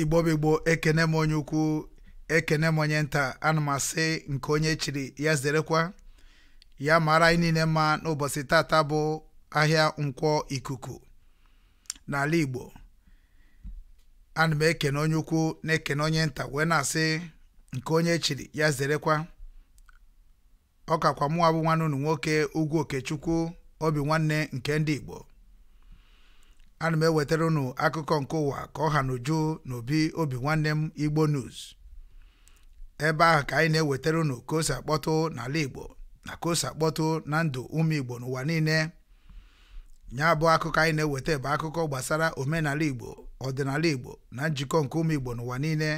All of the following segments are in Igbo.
igbo bụ ekene m onye ukwu ekene m onye nta ana m asị nke onye chiri ya zerekwa ya mara anyị niile mma n'ụbọchị tata bụ ahịa nkwọ ikuku n'ala igbo ana m ekene onye ukwu na-ekene onye nta wee na-asị nke onye chiri ya zerekwa ọ kakwa mụnwa bụ nwanne unu nwoke ugwu okechukwu obi nwanne nke ndị igbo ana m ewetara unu akụkọ nke ụwa ka ọ ha n'uju n'obi obi nwanne m igbo news ebe ahụ ka anyị na-ewetara unu ka o si akpọtụ n'ala igbo na ka o si akpọtụ na ndụ ụmụ igbo n'ụwa niile ya bụ akụkọ anyị na-eweta bụ akụkọ gbasara omenala igbo ọdịnala igbo na njikọ nke ụmụ igbo n'ụwa niile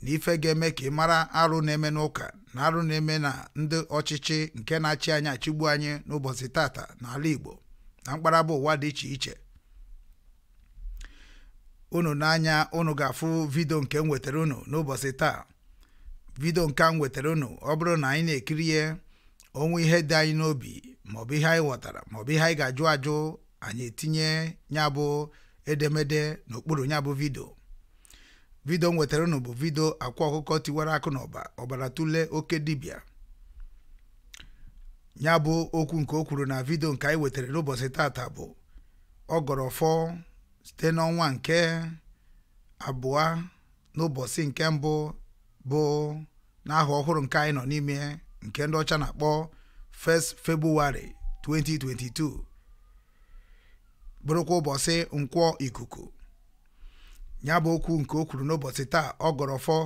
na ife ga-eme ka ị mara arụ na-eme n'ụka na arụ na-eme na ndị ọchịchị nke na-achị anyị achịgbu anyị n'ụbọchị tata n'ala igbo na mkparaba ụwa dị iche iche unu n'anya unu ga-afụ vidio nke m nwetara unu n'ụbọchị taa vidio nke m nwetara unu ọ bụrụ na anyị na-ekiri ya onwe ihe dị anyị n'obi maọbụ ihe anyị ghọtara maọbụ ihe anyị ga-ajụ ajụ anyị etinye ya bụ edemede n'okpuru ya bụ vidio vidio m wetara unu bụ vidio akwa ọkụkọ tiwara akụ na ọba ọbara tụlee oke dibịa ya bụ okwu nke o kwuru na vidio nke anyị wetara n'ụbọchị taata bụ ọ gọrọ fọ site n'ọnwa nke abụọ n'ụbọchị nke mbụ bụ n'aha ọhụrụ nke anyị nọ n'ime nke ndị ọcha na-akpọ 1st 2022 bụrụkwa ụbọchị nkwọ ikuku ya bụ okwu nke o kwuru n'ụbọchị taa ọ gọrọfọ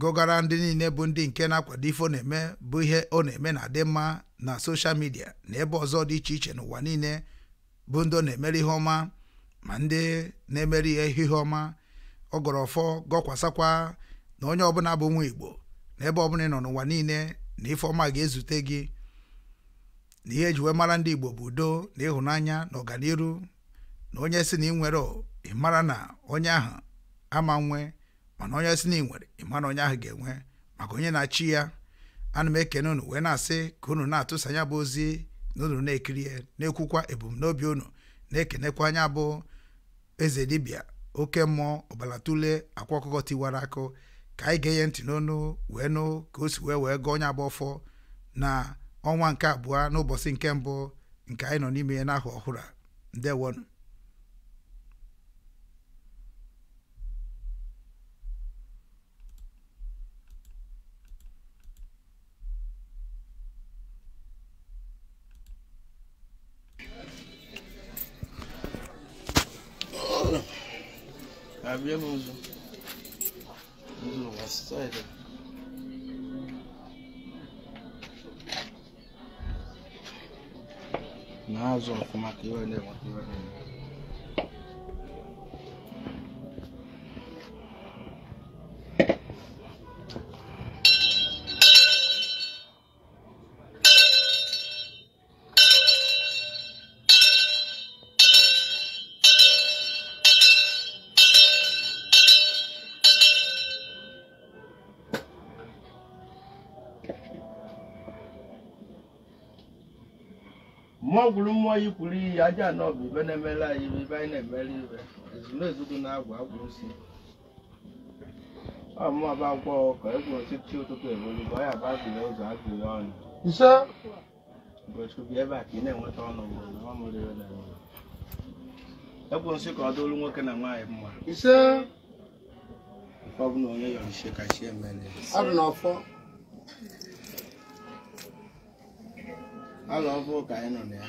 gụgara ndị niile bụ ndị nke na-akwado ife ọ na-eme bụ ihe ọ na-eme na adị mma na soshal midia na ebe ọzọ dị iche iche n'ụwa niile bụ ndị ọ na-emere ihe ọma ma ndị na-emere ihe ihe ọma ọgọrọfọ gọkwasakwa na onye ọbụla bụ nwa igbo na ebe ọbụla nọ n'ụwa niile na ife ọma ga-ezute gị na ihe eji wee mara ndị igbo bụ udo na ịhụnanya na ọganiru na onye si na ị nwere ịmara na onye ahụ ama nwe mana onye si na ị nwere ị onye ahụ ga-enwe maka onye na-achị ya ana m ekene unu wee na-asị ka unu na-atụsa anya bụ ozi na unu na-ekiri ya na-ekwukwa ebumnobi unu na-ekenekwa anya bụ eze dibia oke mmụọ ọbalatule akwa ọkụkọ tiwara akụ ka anyị ga-enye ntị n'ọnụ wee nụ ka o si wee wee gụọ onye agba ọfọ na ọnwa nke abụọ n'ụbọchị nke mbụ nke anyị nọ n'ime ya n'ahụ ọhụrụ a ndewonụ abbiamo uso uso la storia nazo kuma kiwa ne kuma kiwa ne nwaanyị kwuru iyi aja anọ bụ ibe na-emela anyị ibe ibe anyị na-emela ibe ezunezugwu na-agwụ agwụ isi ọmụba gwọ ka egwu osisi ụtụtụ ebolu bụ ya bụ agụle ụzọ agụle ọnụ gochukwu ebe a ka ị na-enweta ọnụ ọ na-enweta egwu nsị ka ọ dịolu nwoke na nwaanyị mma nke ọ bụ na onye yọrọ ise ka chi emere alọ ọbụ ka anyị nọ na ya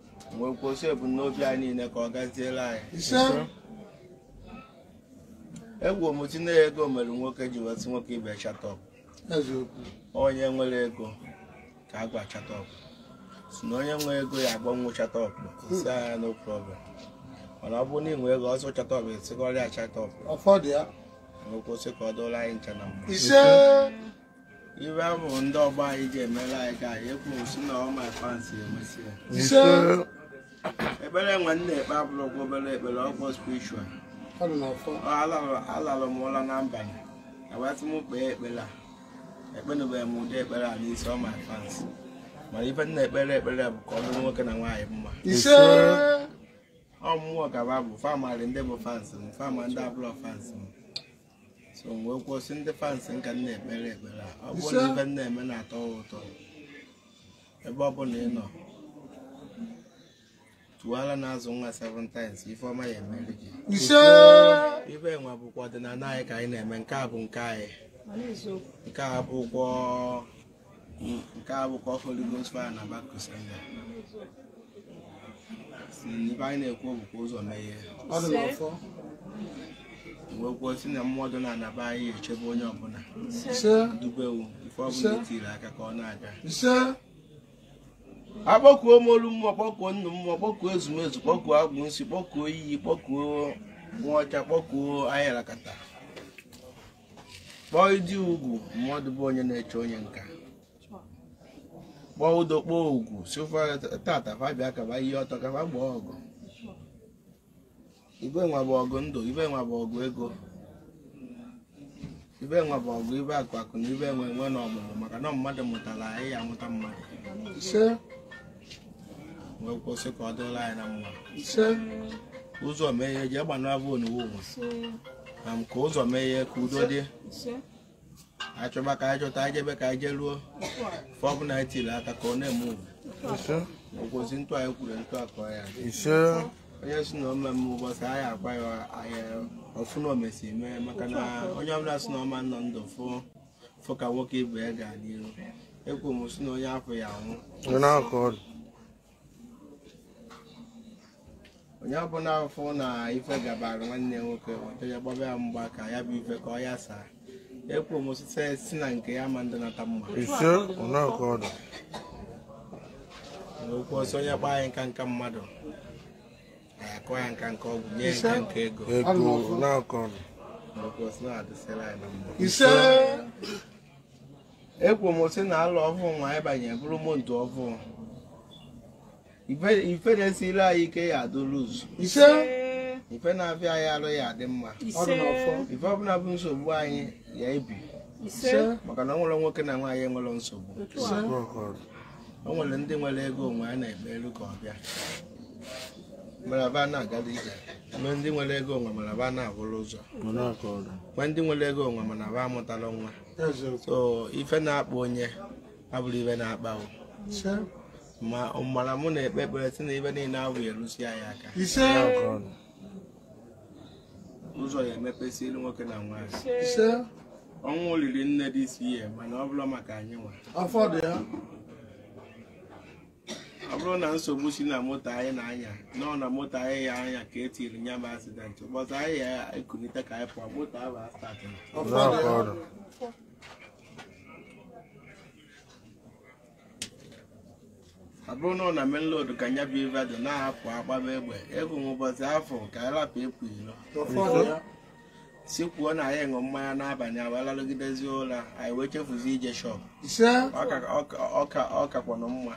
wee kwụsị ebumnobi anyị niile ka ọ gaziela anyị egwu omuti na ego mere nwoke ji wetụ nwoke ibe chatọp onye nwere ego ka a gwa chatọp si na onye nwe ego ya agbanwe chatọp si anya no problem mana ọ bụrụ na ị nwee ego ọsọ chatọp esikọrịa chatọp kwụsị ka ọ dụrụ anyị ncha na mbụ iwe ahụ ndị ọgbọ anyị ji emela anyị ga anyị ekwuru si na emesi ekpere nwanne ekpe abụrụgwụ obere ekpere ọgbọ spiritual alara m ụra na mbalị abatị m kpee ekpere a ekpenubeghị m ụdị ekpere a n'isi ọma advance mana ibe nna ekpere ekpere bụ ka ọ nwoke na nwaanyị mma ọ mmụọ gaba bụ famarị ndị bụ fans m fama ndị abụrọ fans m so wee kwụsị ndị fans ka nna ekpere ekpere ọ bụrụ na ife nna eme na-atọ ụtọ ebe ọ bụla ị nọ na n'azụ nwa seven ifeoma ifeọma ya emeri gị ibe enwe bụkwa ọdịnala anyị ka anyị na-eme nke a bụ nke anyị nke a nke a bụkwa Holy Ghost na ibe anyị na-ekwu bụkwa ụzọ meghe wee si na mmụọ na anaba anyị echebe onye ọbụla dubewu ife ọbụla etiri e aka ka ọ na-aga akpọkuo molu mma kpọkuo nnu mma kpọkuo ezumezu kpọkuo agwụnsi kpọkuo iyi kpọkuo nwaọcha kpọkuo ayarakata kpọọ ịdị ugwu mmadụ bụ onye na-eche onye nka kpọọ ụdọ kpọọ ugwu sofa tata fabia kaba ihe ọtọ kaba gbaa ọgụ ibe nwa ọgụ ndụ ibe nwa ọgụ ego ibe nwa bụ ọgụ ibe akụ akụ na ibe enwe enwe na ọmụmụ maka na mmadụ mụtara anyị amụta mmadụ wee kwụsị ka ọ dịla anyị na mma ụzọ mee ihe jee gbanara bụ oniwo na ka ụzọ mee ihe ka udo dị achọba ka anyị chọta anyị ka anyị jee ruo fọbụla anyị tiri aka ka ọ na-eme ugwu ụkwụzi ntụ anyị kwuru ntụ akọ ya onye si na ome m ụbọchị anyị akwa ya ọfụ na omesi mee maka na onye ọbụla si na ọma nọ ndụ fụ fụ ka nwoke ibe ya ga n'ihu ekwu m si na onye afọ ya anwụ onye ọ bụla afọ na ife gabara nwanne ya nwoke ọtọja gbaba ya mgba ka ya bụ ife ka ọ ya saa ekwu m site si na nke ya ma ndị nata mma n'okwu ọsọ onye kpaa ya nka nka mmadụ na-akọ ya nka nka ọgwụ nye nka nka ego n'okwu ọsọ na-adịsịra anyị na mma ekwu m sị na alụ ọhụụ nwa ịbanye bụrụ moto ọhụụ ife na-esiri anyị ike ya adụrụ Ise. ife na-abịa anyị alụ ya adị mma ife ọbụla bụ nsogbu anyị ya ebi maka na ọ nwoke na nwaanyị enwere nsogbu o nwere ndị nwere ego onwe a na-eme elu ka ọ bịa maraba na-agada ije mgbe ndị nwere ego onwe maraba na-abụrụ ụzọ mgbe ndị nwere ego onwe mana ba amụtala nwa so ife na-akpa onye abụrụ ife na-akpa ma ọmara mụ na-ekpe ekpere si na ebe niile ahụ erusi anyị aka ụzọ ya emepesị elu nwoke na nwaanyị ọnwụ olili nne dị isi ihe mana ọ bụrụ maka anyị nwa ọ bụrụ na nsogbu si na moto anyị na-anya nọọ na moto anyị ya anya ka etiri nya bụ asidenti ụbọchị anyị ya ekunite ka anyị pụọ moto ahụ asatọ ọ na ọ na menlod ka nya bụ ive dị na-apụ agbaba egbe ego ụbọchị afọ ka anyị lapụ ịpụ ilo sikwuo na anyị ṅụ mmanya n'abalị awalalụgidezi ụra anyị wee chefuzi ije shọp ọkakwanụ mma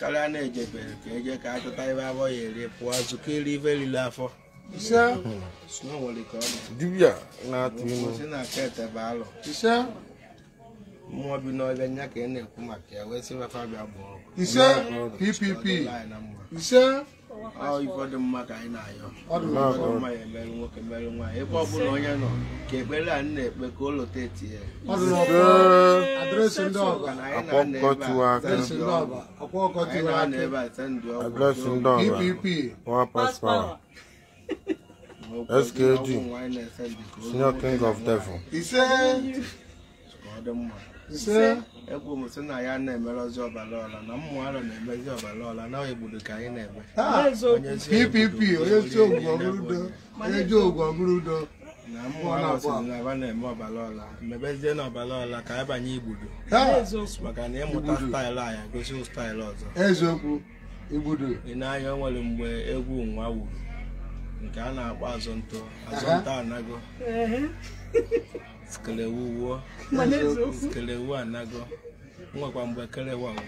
karịa na-ejebere ka eje ka a chọta ibe abụọ ya eri pụọ zụkọ iri ive riri afọ na-atụ ilu mmụọ bi n'ọbịa nya ka ị e na-ekwu maka ya wee sị mefa bịa bụ ise ppp ise ụfọdụ mma ka anyị na-ayọ ụfọdụ ya emerụ nwoke merụ nwaanyị ebe ọbụla onye nọ ka ekpere anyị na-ekpe ka ụlọ teti ya SKD, Senior King of Devil. He Ise m sị na ya na-emere ozi ọbara ọla na mmụọ ara na-emezi ọbara ọla na egbudu ka anyị na-eme ppp onye si ogwu ọgụrụdo onye ji ogwu ọgụrụdo na mmụọ na-asị na aba na-eme ọbara ọla mebezie na ọbara ọla ka anyị banye igbudu maka na ịmụta staịlụ anyị gosi staịlụ ọzọ eziokwu igbudu ị na-anya o mgbe egwu nwa wuru nke a na-akpọ azụ ntụ azụ ntụ anago skelewu anago nwekwa mgbe kelewa ma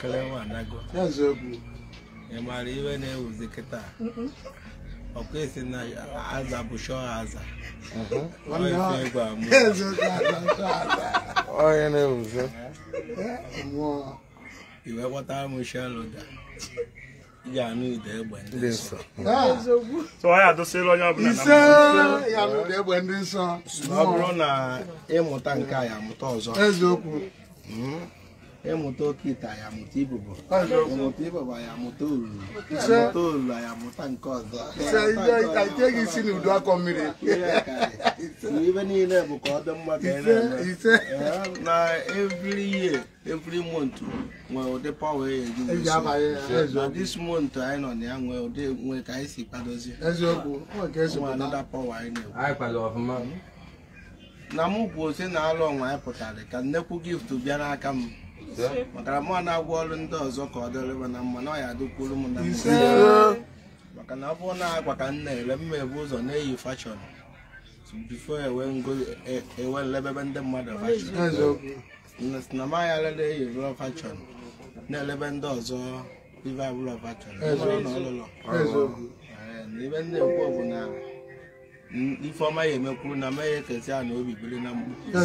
kelewa anago ị maara iwe na-ewuzi kịta ọkwa esi na aza bụ shọ aza onye na-ewuzi eh, iwe kpọtara m shọ loda egbe ndị nsọ ọ bụrụ na ịmụta nke a ya amụta ọzọ eziokwu hmm? yamuto kita yamuto ibubo yamuto ibubo yamuto uru yamuto uru yamuto nke ọzọ ike isi na udo akọ mmiri ibe niile bụ ka ọ dị mma ka ị na-eme na every year every month nwee ụdị power eji na this month anyị nọ na ya nwee ụdị nwee ka anyị si kwadozie eziokwu another power anyị na-ekwu na mụ bụ ose na alụ ọnwa anyị pụtara ka nnekwu gift bịa n'aka m maka na na-agwọ ọrụ ndị ọzọ ka ọ dịrị na mma na ọ ya adịkwuru m na maka na ọ bụ na agwa ka m na-ere mma ebu ụzọ na-eyi fashọn bifo e ewe e nlebebe ndị mmadụ fashọn na eyi rụọ fashọn na-elebe ndị ọzọ fashọn ndị ekwu bụ Ifeọma ya emekwuru na mmanya ekezi a na obi biri na mma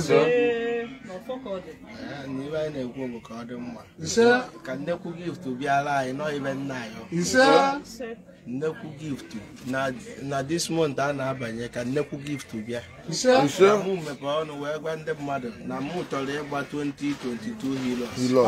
n'ibe anyị na-ekwu bụ ka ọ dị mma ka nnekwu gift bịara anyị nọ ibe nna anyị nnekwu gift na this month a na-abanye ka nnekwu gift bịa mụ mepee ọnụ wee gwa ndị mmadụ na mụ chọrọ ịgba 2022 hilos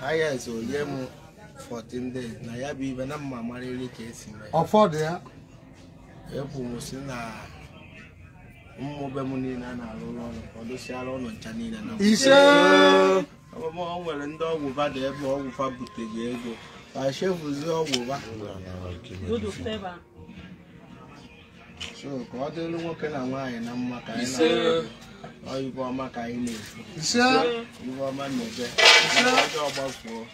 highest onye m 14 days na ya bụ ibe na mma marịrị ka esi mee ọfọdụ ya ekwuru si na mmụbe m niile a na-arụ ụlọ ọrụ ka ọ ụlọ ncha niile na ọmụmụ nwere ndị ọgwụ ụba dị ebe ọgwụ fa buteghị ego ka chefuzie ọgwụ ba so ka ọ dịrị nwoke na nwaanyị na mma ka anyị na ibe ọma ka anyị na-eje ọjọọ gbafuo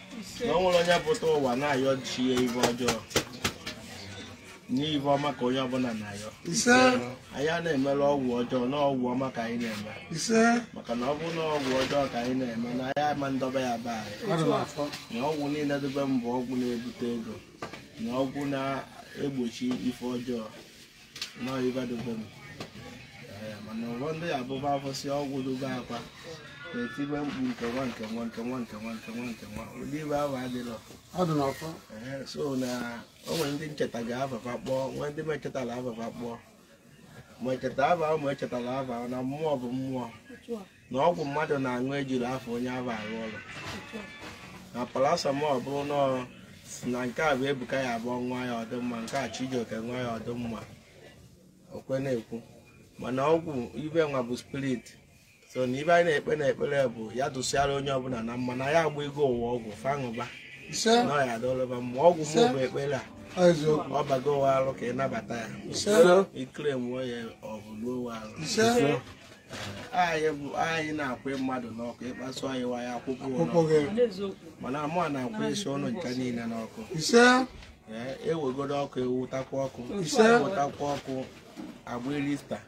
na ọ nwere onye pụta ụwa na-ayọ chi ya ibe ọjọọ n'ibe ọma ka onye ọbụla na-ayọ anyị a na-emere ọgwụ ọjọọ na ọgwụ ọma ka anyị na-eme maka na ọ bụrụ na ọgwụ ọjọọ ka anyị na-eme na anyị ama ndọba ya baa anyị na ọgwụ niile dobe mbụ ọgwụ na-ebute ego na ọgwụ na-egbochi ife ọjọọ na ibe dobe mbụ Eh, mana ụlọ ndị ya abụba afọsị ọgwụ dobe akwa na-etibe mkpu nke nwa nke nwa nke nwa nke nwa nke nwa nke nwa ụdị ibe ahụ adịrọ so na o ndị ncheta ga-afafa kpọọ nwee ndị mechetara afafa kpọọ ma echeta aba ma echetara aba na mmụọ bụ mmụọ na ọgwụ mmadụ na-aṅụ ejiri afọ onye aba arụ ụlọ na parasamọl bụrụ nọọ na nke a bụ ebuka ya abụọ nwa ya ọdịmma nke a chijioke nwa ya ọdịmma okwe na-ekwu mana ọgwụ ibe nwa bụ spirit so na ibe anyị na-ekpe na ekpere bụ ya dụsịara onye ọbụla na mma na ya agba ego ụwa ọgwụ fanụba na ya adọlọba ma ọgwụ m bụ ekpere a ọ bago ụwa arụ ka ị nabata ya ikere nwụọ ya ọ bụ ụwa arụ anyị na-akwụ mmadụ n'ọkụ ịkpasu anyị waya akwụkwọ mana amụa na-akwụ isi ọnụ nke niile n'ọkụ ewegodo e ọkụ ewutakwa ọkụ ewutakwa e ọkụ agba elista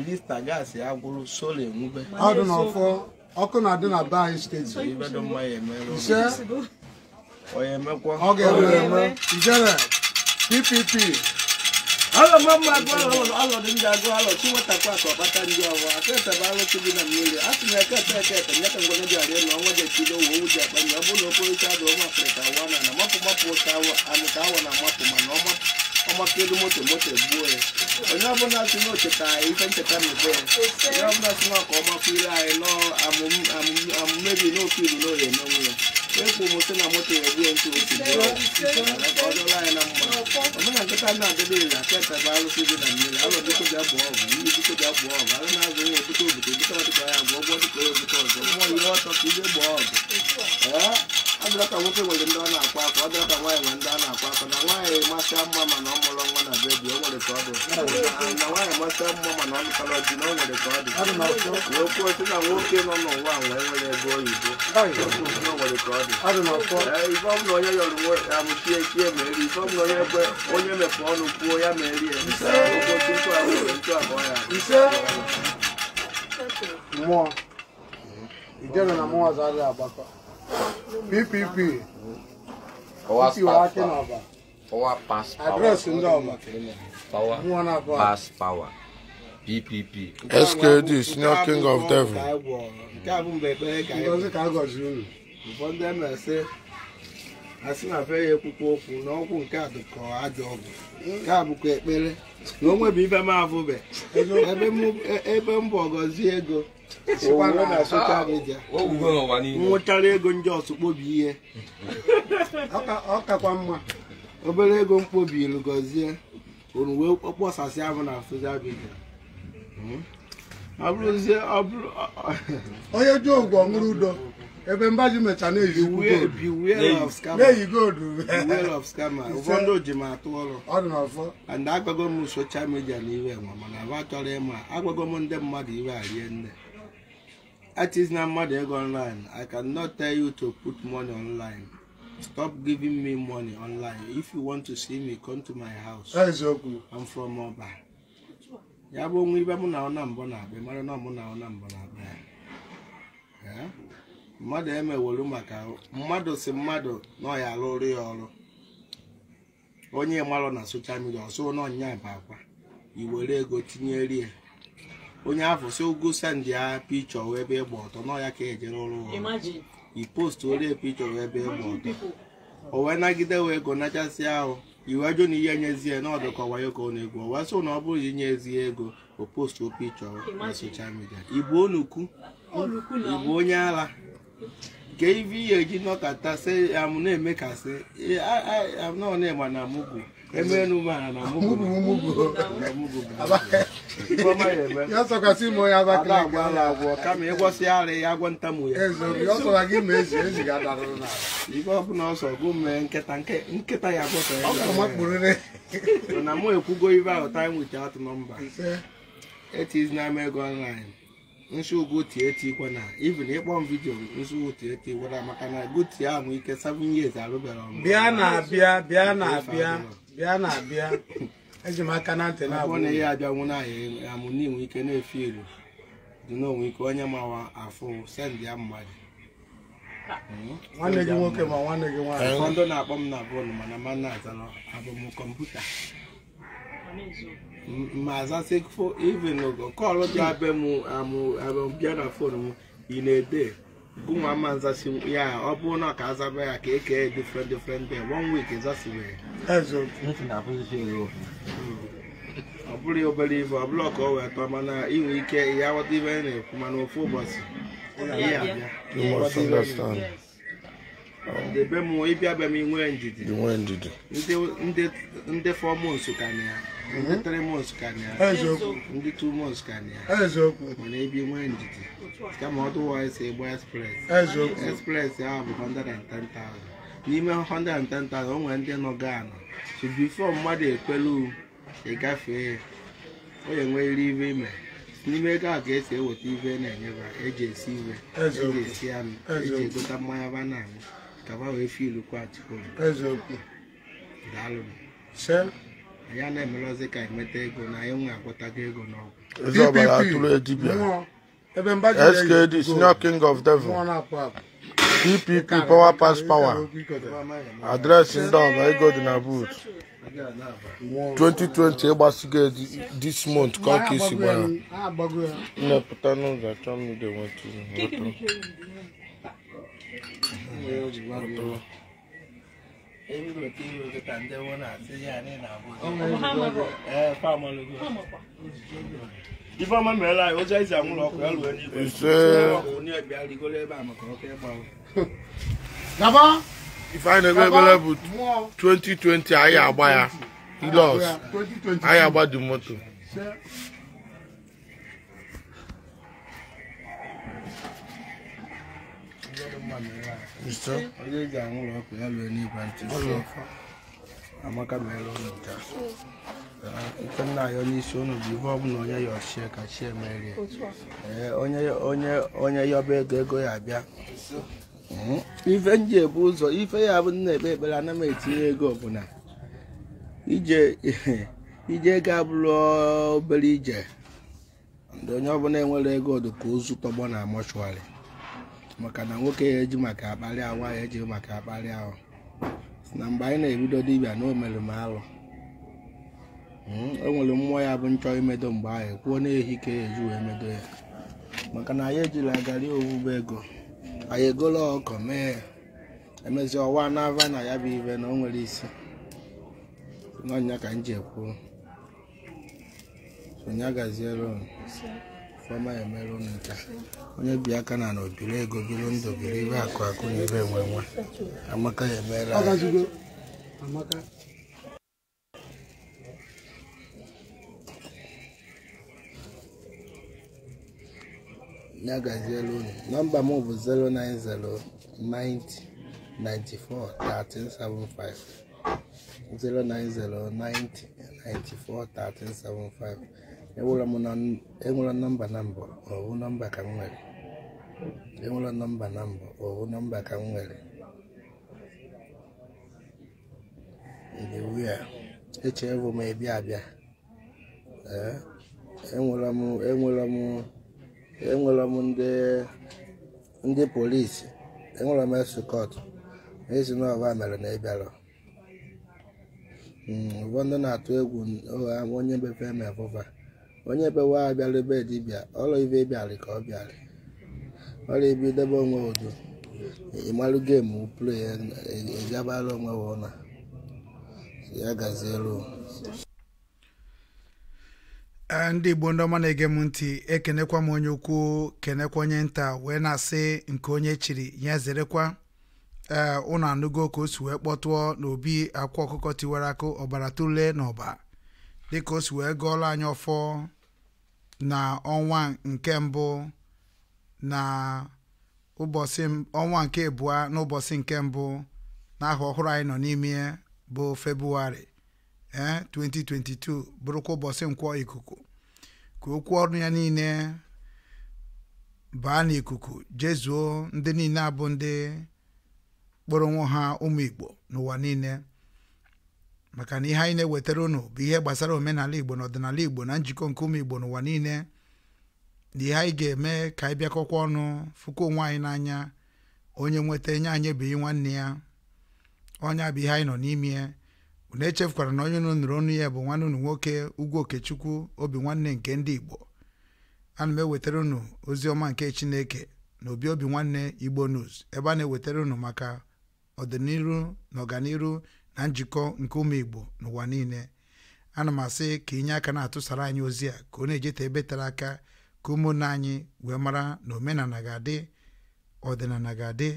elista gaasị agwụrụ sola enwube ọdụ n'ọfọ ọkụ na-adị na be anyị steeti ise onye emekwa ọ ga-enwe enwe ijere ppp alọ mma mma agụ alọ alọ dị ndị agụ alọ chi nwetakwa ka ọkpata ndị ọwa aka etebe alụ chi dị na mmiri a sị na eke ete eke ete nye ka ngwene ji arịa na ọnwa ji echido owu owu ji akpa ndị ọ bụrụ na okporo ike adụ ọma afrịka awa ọmọkedu moto moto gbuo ya onye ọbụla si n'ocheta ife ncheta mebe onye ọbụla si na ọka ọma kwuire anyị n'amụmebi n'okiru n'oye n'onwe ya ekwu m sị na moto ya egbue nke otu ọ dọla anyị na mma ọbụna nkịta na-adịbe iri aketa bụ arụsị dị na mmiri alụ dịkọ bịa bụọ ọgụ ndị dịkọ bịa bụọ ọgụ alụ na-azụ nwa obuto obuto obuto ọdịkọ ya bụ ọgwọ dịkọ ya obuto ọzọ mmụọ ihe ọtọ ka ije gbaa ọgụ ọ nwoke nwere ndị ọ na-akwa akwa ọ nwaanyị na ndị a na-akwa akwa na nwaanyị masịa mma mana ọ mụrụ nwa na bebi o nwere ka ọ dị na nwaanyị masịa mma mana ọ mụtara di na o nwere ka ọ dị n'okwu otu na nwoke nọ n'ụwa wee nwere ego oyibo o nwere ka ọ dị ife onye yọrọ amụchie chie onye onye mepe ọnụ kwuo ya ma erie ya na ọzọ PPP Power. pass power pass power address ndị power pass power PPP SKD senior king of devil nke asị sị na be ya ekwukwa okwu na ọgwụ nke a dịka ajọ ọgwụ nke a bụkwa ekpere na o nwebụ ibe m afụbe ebe m bụ e, ọgọzie ego na soshal midia nwụchara ego ndị ọsụ ihe ọ kakwa mma obere ego mkpobi ilu gọzie unu wee kpọsasịa ahụ na soshal midia hmm? ọ bụrụzie ọ bụrụ onye ji ụgwọ ọṅụrụ udo ebe mba mbaji mecha na-eyi goldu ụfọdụ oji m atụ ọrụ and agwago m soshal midia na iwe nwa mana ahụ achọrọ ịma agwago m ndị mmadụ iwe arie nne artist na mmadụ ego online i cannot tell you to put money online stop giving me money online if you want to see me come to my house i'm from Oba ya bụ onwe ibe mụ na ọ na mbọ na-abịa mara na ọ mụ na ọ na mbọ na-abịa mmadụ emewolu maka mmadụ si mmadụ na ọ ya alụrụ ya ọrụ onye malụ na soshal midia ọsụ n'ọnya bụ akwa iwere ego tinyere ya onye afọ si ụgụ sendị ya pichọ wee ebe ịgba ọtọ ya ka ejere ọrụ ipostu ole pichọ wee ebe ịgba ọtọ o wee nagide wee ego nachasị ahụ iwe ajụ na ihe nyezie n'ọdụ ka ọwayo ka ọ na-egwu o wee na ọ bụrụ inye ezi ego o postu pichọ na soshal midia ịbụ onukwu ịbụ onye agha. ka ibe ihe n'ọkata nọkatasị amụ na-emekasị anọ na-egba na mụgwụ emeenu mara na mụgwụ m ime onye Abakaliki ala agwọ kama ịgwọsị ara ya agwọ ntamu ya ibe ọbụla ọsọ gụ mee nkịta nkịta ya gwọsọ ya na mụ ekwugo ibe ahụ time without number it is na ego online nsi ugotieti ikwe na even m vidiyo nsi tie ikwe na maka na goti ahụ ike 7 years arụbara ọmụ bịa na abịa bịa na abịa bịa na abịa eji m aka na ntị na-abụ na ihe abịanwu na ahịa amụ n'inwe ike na efi elu dị n'onwe ike onye mawa afụ send ya mmadụ hmm? nwanne gị nwoke ma nwanne gị nwaanyị ụfọdụ na-akpọ m na bọọlụ mana ma na-azara abụ m kọmputa ma mazasị even kọlụ dị abịa na fon m ị na-ede bụnwa ama nzasi ya ọ bụrụ na ka azaba ya ka eke different different day one week zasibere ọ bụrụ obere ibe ọ bụrụ ka ọ wee tọọ mana inwe ike ya ghọta ibe na-ekwu mana ofu ụbọchị ya abịa debe m ịbịa be m nwee ndidi ndị four months ka na ya ndị three months ka na ya ndị two months ka na ya mana ebi nwee ndidi kama ọdụwise ịgba express express ahụ bụ ten 110,000 n'ime ten 110,000 o nwere ndị nọga anọ so before mmadụ ekwelu ịgafee o enwerịrị ibe ime n'ime ego a ka e e esi eweta ibe na-enyeba enye eji esi ibe eji esi anụ eji egota mmanya ba na kaba wee fi ilu kwa atụolu eziokwu daalụnụ se ya na-emere ka enweta ego na anyị nwe agwọtago ego n'ọgwụ eze atụrụ edibia skd senior king of devil dpp power pass power adreesị ndị ọba ego dị na but 2020 ịgbasigo this month ka ọka isi gbara nnepụta n'ụzọ achọ m ide ihe na ifeọma meela anyị a ifeanyị na-egbe bụ 2020 anyị agba ya ilos anyị agba dị onye ga-anwụ ọkụ ya lụọ n'igwe ntị amaka mere ụlọ nta ike nna ya onye isi ụnụ bụ ihe ọbụla onye ya ọchie ka chi emerie ee onye ya ọba ego ego ya abịa ife nji ebu ụzọ ife ya bụ nna ekpe ekpere ana m etinye ego ọbụla ije ego abụrụ obere ije ndị onye ọbụla enwere ego ọdụ ka ozu tọgbọ na mọchụarị maka na nwoke ya eji maka akparị awa ya eji maka akparị ahụ na mgbe anyị na-ebido dibịa na o mere m alụ enwere hmm, mmụọ ya bụ nchọ imedo mgbe ahụ kwuo na-ehi ka ya e eji wee medo ya maka na anyị ejila garị owuwe ego anyị egola ọkọ mee ya emezi ọwa n'ava na ya bụ ibe na o nwere isi n'ọnya ka m ji ekwuo onye gaziere fema onye bi aka na na obiri ego biri ndụ biri ibe akụ akụ na ibe nwe nwe amaka ya emere ya gaziela unu nọmba m bụ 09090941375 09090941375 enwela m na enwere nọmba na mbọ ọwụ nọmba ka m nwere enwere nọmba na mbụ ọwụ nọmba ka m nwere ndị wia echerebụ m ịbịa abịa enwela m enwela m enwela m ndị ndị polisi enwela m esukọt ezi na ọba mere na ịbịara hmm, ụfọdụ na-atụ egwu onye befe eme bụba onye bewe abịala ebe dibịa ọrụ ibe bịarị ka ọ bịarị ọrụ ibe idebe onwe udo ịmalụ gemu play ịgabara e, e, e onwe ụla ya gazielu ndị igbo ndị ọma na-ege m ntị ekenekwa m onye ukwu kenekwa onye nta wee na-asị nke onye chiri ya zerekwa ee ụnụ anụgo ka o si wee kpọtụọ n'obi akwa ọkụkọ tiwara akụ ọbara na n'ọba dịka o si wee gụọla anyị ọfọ na ọnwa nke mbụ na ụbọchị ọnwa nke abụọ n'ụbọchị nke mbụ n'aha ọhụrụ anyị nọ n'ime bụ febụwarị ee 2022 bụrụkwa ụbọchị nkwọ ikuku ka okwu ọrụ ya niile baa n'ikuku jezuo ndị niile abụ ndị kpọrọ onwe ha ụmụ Igbo n'ụwa niile maka na ihe anyị na-ewetara unu bụ ihe gbasara omenala igbo na ọdịnala igbo na njikọ nke ụmụ igbo n'ụwa niile na ihe anyị ga-eme ka anyị bịakọkwa ọnụ fụkwa onwe anyị n'anya onye nweta enye anyị ebeghị nwanne ya onye bụ ihe anyị nọ n'ime ya unu echefukwara na onye unu nụrụ ọnụ ya bụ nwanne unu nwoke ugwu okechukwu obi nwanne nke ndị igbo ana m ewetara unu ozi ọma nke chineke na obi obi nwanne igbo news ebe a na-ewetara unu maka ọdịnihu na ọganihu na njikọ nke ụmụ igbo n'ụwa niile ana m asị ka inye aka na-atụsara anyị ozi a ka ọ na-ejeta ebe tere aka ka ụmụnna anyị wee mara na omenala ga-adị ọdịnala ga-adị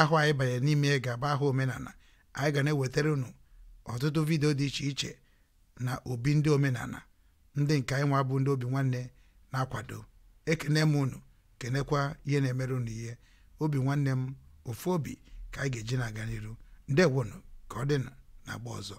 ahụ anyị banyere n'ime ga-aba ahụ omenala anyị ga na-ewetara unu ọtụtụ vidio dị iche iche na obi ndị omenala ndị nke anyị nwa bụ ndị obi nwanne na-akwado ekene m unu kenekwa ihe na-emere unu ihe obi nwanne m ofu obi ka anyị ga-eji na-aga n'iru ndewonu ka ọ dị na agba ọzọ